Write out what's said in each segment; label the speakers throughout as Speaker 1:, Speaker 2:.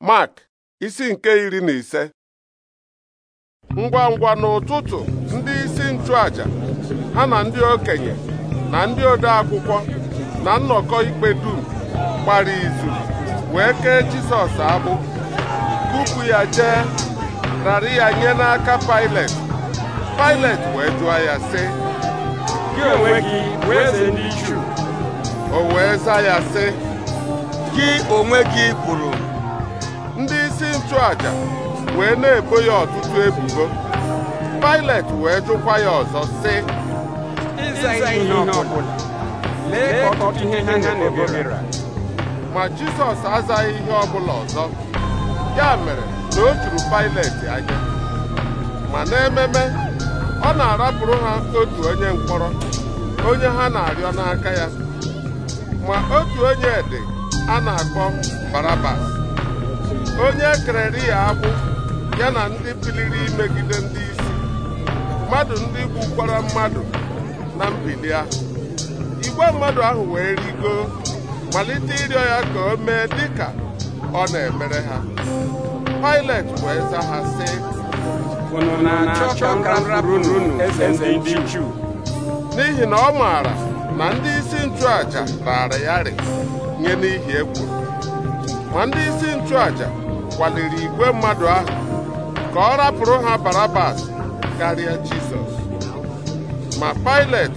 Speaker 1: Mark isi nke iri na ise ngwa ngwa n'ụtụtụ ndị isi ntụaja ha na ndị okenye na ndị ode akwụkwọ na nnọkọ ikpe dum gbara izu wee kee Jisọs abụ. kupu ya jee rara ya nye n'aka Pailet Pailet wee jụọ ya sị gị onwe gị eze ndị o wee za ya sị gị onwe gị bụrụ aja wee na-ebo ya ọtụtụ ebubo Pilet wee jụkwa ya ọzọ si ma Jizọs azaghị ihe ọbụla ọzọ ya mere na o juru Pilet anya ma n'ememe ọ na-arapụrụ ha otu onye mkpọrọ onye ha na-arịọ n'aka ya ma otu onye dị a na-akpọ Barabas onye kerere ya agbụ ya na ndị biliri imegide ndị isi mmadụ ndị gbukwara mmadụ na mbili ahụ igwe mmadụ ahụ wee rigo malite ịrịọ ya ka o mee dịka ọ na-emere ha Pilet wee za ha si, na-achọ n'ihi na ọ maara na ndị isi nchụaja raara ya nye n'ihi egwu ma ndị isi nchụaja kwaliri igwe mmadụ ahụ ka ọ rapụrụ ha Barabas karịa Jizọs ma Pilet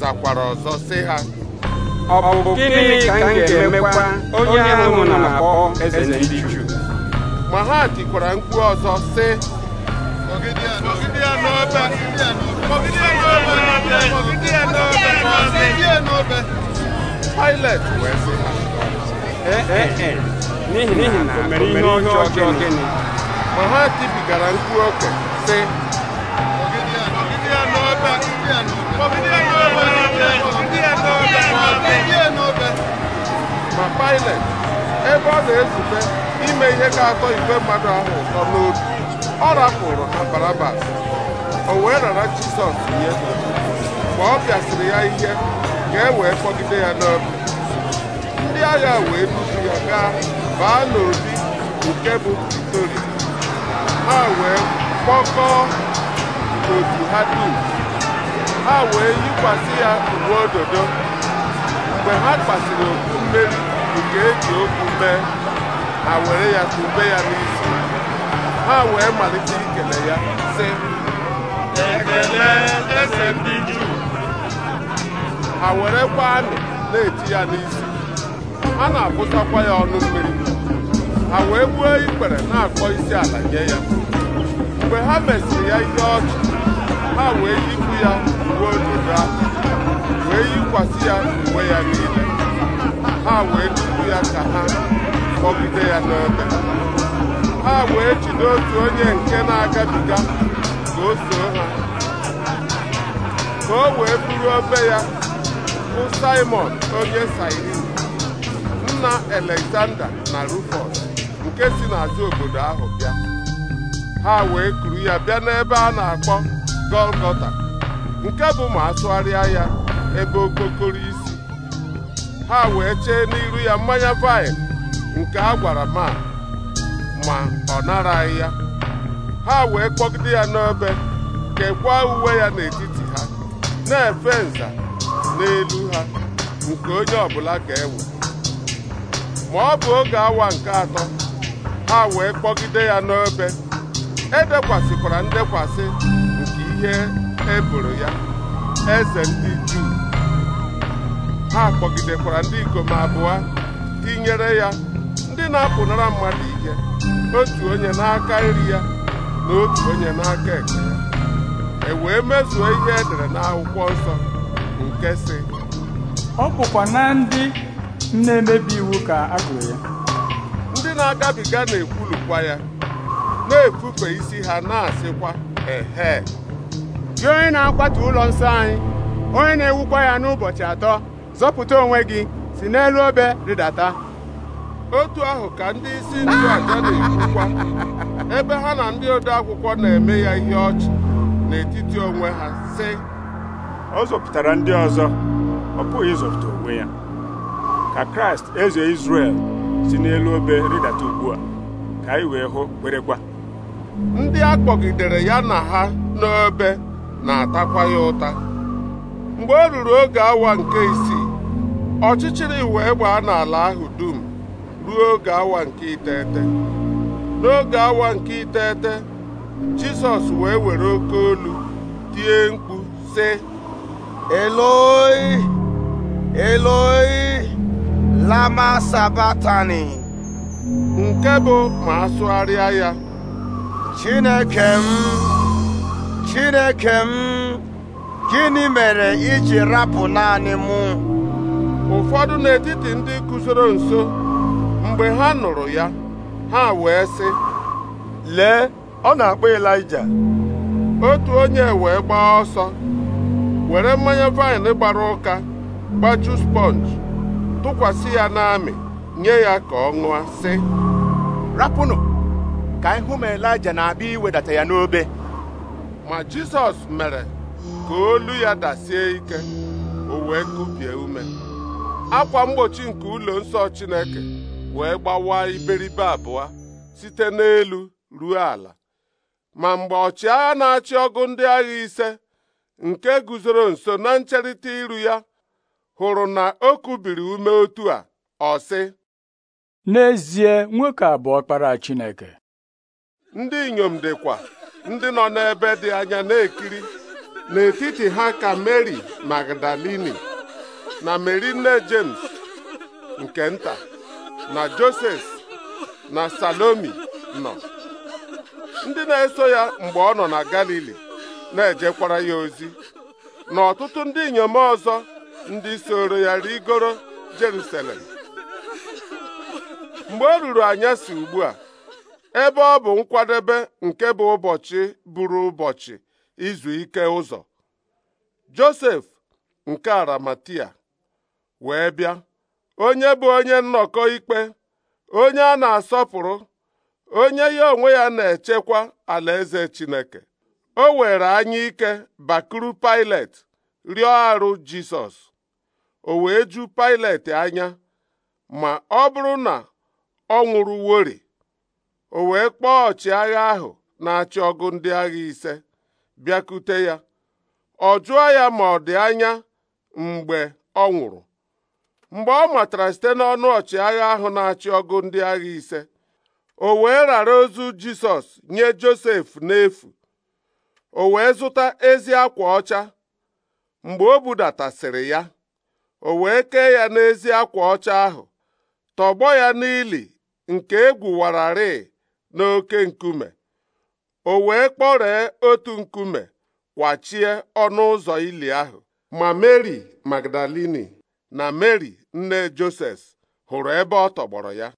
Speaker 1: zakwara ọzọ sị ha ọ bụ gịnị ka m ga-emekwa onye ahụ na-akpọ eze ndị Juu ma ha tikwara mkpu ọzọ sị Pilet wee sị ha n'ihi na o mere ihe ọjọọ gịnị ma ha tipigara mkpu okwe sị ma Pilet ebe ọ na ezute ime ihe ga-atọ igwe mmadụ ahụ ụtọ n'obi ọ rapụrụ na Barabas o wee rara Jizọs nye mgbe ọ bịasịrị ya ihe ka e wee kpọgide ya n'obi ndị agha wee buso ya gaa baa n'obi nke bụ Pretoria ha wee kpọkọọ otu ha dum ha wee yikwasị ya uwe ododo mgbe ha kpasịrị okpu mmeri nke eji okwu mee ha were ya kube ya n'isi ha wee malite ikele ya sị ekele eze ndị Juu ha werekwa amị na-eti ya n'isi a na-akwụsakwa ya ọnụ mmiri ha wee gbuo ikpere na-akpọ isi ala nye ya mgbe ha mesịrị ya ihe ọchị ha wee yipụ ya uwe ododo ahụ wee yikwasị ya uwe ya niile ha wee tupu ya ka ha kpọgide ya n'ebe ha wee jide otu onye nke na-agabiga ka o soo ha ka o wee buru obe ya bụ Simon onye Sairi nna Alexander na Rufus nke si n'azụ obodo ahụ bịa ha wee kuru ya bịa n'ebe a na-akpọ Golgota nke bụ ma asụgharịa ya ebe okpokoro isi ha wee chee n'iru ya mmanya vaịn nke a gwara ma ma ọ naraghị ya ha wee kpọgide ya n'ebe kekwaa uwe ya n'etiti ha na-efe nza n'elu ha nke onye ọbụla ga-ewe ma ọ bụ oge awa nke atọ ha wee kpọgide ya n'obe edekwasịkwara ndekwasị nke ihe eboro ya eze ndị juu ha kpọgidekwara ndị ikom abụọ tinyere ya ndị na-apụnara mmadụ ike otu onye n'aka nri ya na otu onye n'aka ekpe ya e wee mezuo ihe edere n'akwụkwọ nsọ nke sị ọ bụkwa na ndị na-emebi iwu ka a gụrụ ya ndị na-agabiga na-ekwulukwa ya na-efufe isi ha na-asịkwa ehe gị onye na-akwatu ụlọ nsọ anyị onye na-ewukwa ya n'ụbọchị atọ zọpụta onwe gị si n'elu obe rịdata otu ahụ ka ndị isi nchụaja na-ekwukwa ebe ha na ndị ode akwụkwọ na-eme ya ihe ọchị n'etiti onwe ha sị ọ zọpụtara ndị ọzọ ọ pụghị ịzọpụta onwe ya ka kraịst eze izrel si n'elu obe rịdata ugbu a ka anyị wee hụ kwerekwa ndị a kpọgidere ya na ha n'obe na-atakwa ya ụta mgbe o ruru oge awa nke isii ọchịchịrị wee gbaa n'ala ahụ dum ruo oge awa nke iteghete n'oge awa nke iteghete jizọs wee were oke olu tie mkpu sị eloi eloi lama sabatani nke bụ ma asụgharịa ya chineke m chineke m gịnị mere iji rapụ naanị mụ ụfọdụ n'etiti ndị guzoro nso mgbe ha nụrụ ya ha wee sị lee ọ na-akpọ Elija otu onye wee gbaa ọsọ were mmanya vaịn gbara ụka gbaju sponge tụkwasị ya n'amị nye ya ka ọ ṅụa sị rapụnụ ka ihu m elija na-abịa iwedata ya n'obe ma jizọs mere ka olu ya dasie ike o wee kụbie ume akwa mgbochi nke ụlọ nsọ chineke wee gbawa iberibe abụọ site n'elu ruo ala ma mgbe ọchịagha na-achị ọgụ ndị agha ise nke guzoro nso na ncherịta iru ya hụrụ na o kubiri ume otu a ọ sị n'ezie nwoke abụọ bụ ọkpara Chineke ndị inyom dịkwa ndị nọ n'ebe dị anya na-ekiri n'etiti ha ka Mary Magdalini na Mary nne James nke nta na Joses na Salomi nọ ndị na-eso ya mgbe ọ nọ na Galili na-ejekwara ya ozi na ọtụtụ ndị inyom ọzọ ndị soro ya rigoro Jerusalem mgbe o ruru anyasị ugbu a ebe ọ bụ nkwadebe nke bụ ụbọchị bụrụ ụbọchị izu ike ụzọ Josef nke Aramatia wee bịa onye bụ onye nnọkọ ikpe onye a na-asọpụrụ onye ya onwe ya na-echekwa alaeze Chineke o were anya ike bakuru Pilet rịọ arụ Jisọs o wee ju Pailet anya ma ọ bụrụ na ọ nwụrụwori o wee kpọọ ọchịagha ahụ na-achị ọgụ ndị agha ise bịakute ya ọ jụọ ya ma ọ dị anya mgbe ọ nwụrụ mgbe ọ matara site n'ọnụ ọchịagha ahụ na-achị ọgụ ndị agha ise o wee rara ozu Jisọs nye Josef n'efu o wee zụta ezi akwa ọcha mgbe o budatasịrị ya o wee kee ya n'ezi akwa ọcha ahụ tọgbọ ya n'ili nke egwuwararị n'oke nkume o wee kpọree otu nkume kwachie ọnụ ụzọ ili ahụ ma Meri Magdalini na Meri nne Joses hụrụ ebe ọ tọgbọrọ ya